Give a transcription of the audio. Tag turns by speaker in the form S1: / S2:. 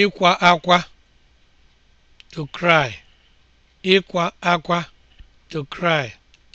S1: ịkwa akwa to akwa to cry